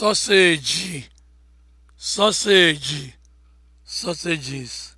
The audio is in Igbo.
sausage, sausage, sausages.